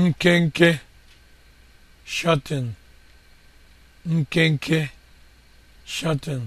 nkenke shọtịn nkenke shọtịn